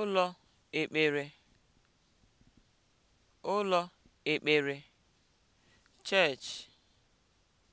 ụlọ ekpere ụlọ ekpere (church)